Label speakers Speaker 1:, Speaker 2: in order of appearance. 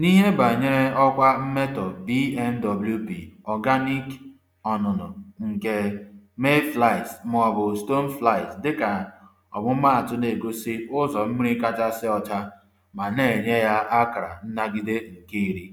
Speaker 1: N'ihe banyere ọkwa mmetọ BNWP (Organic ọnụnụ) nke mayflies maọbụ stoneflies dịka ọmụmaatụ na-egosi ụzọ mmiri kachasị ọcha ma na-enye ya akara nnagide
Speaker 2: nke iri.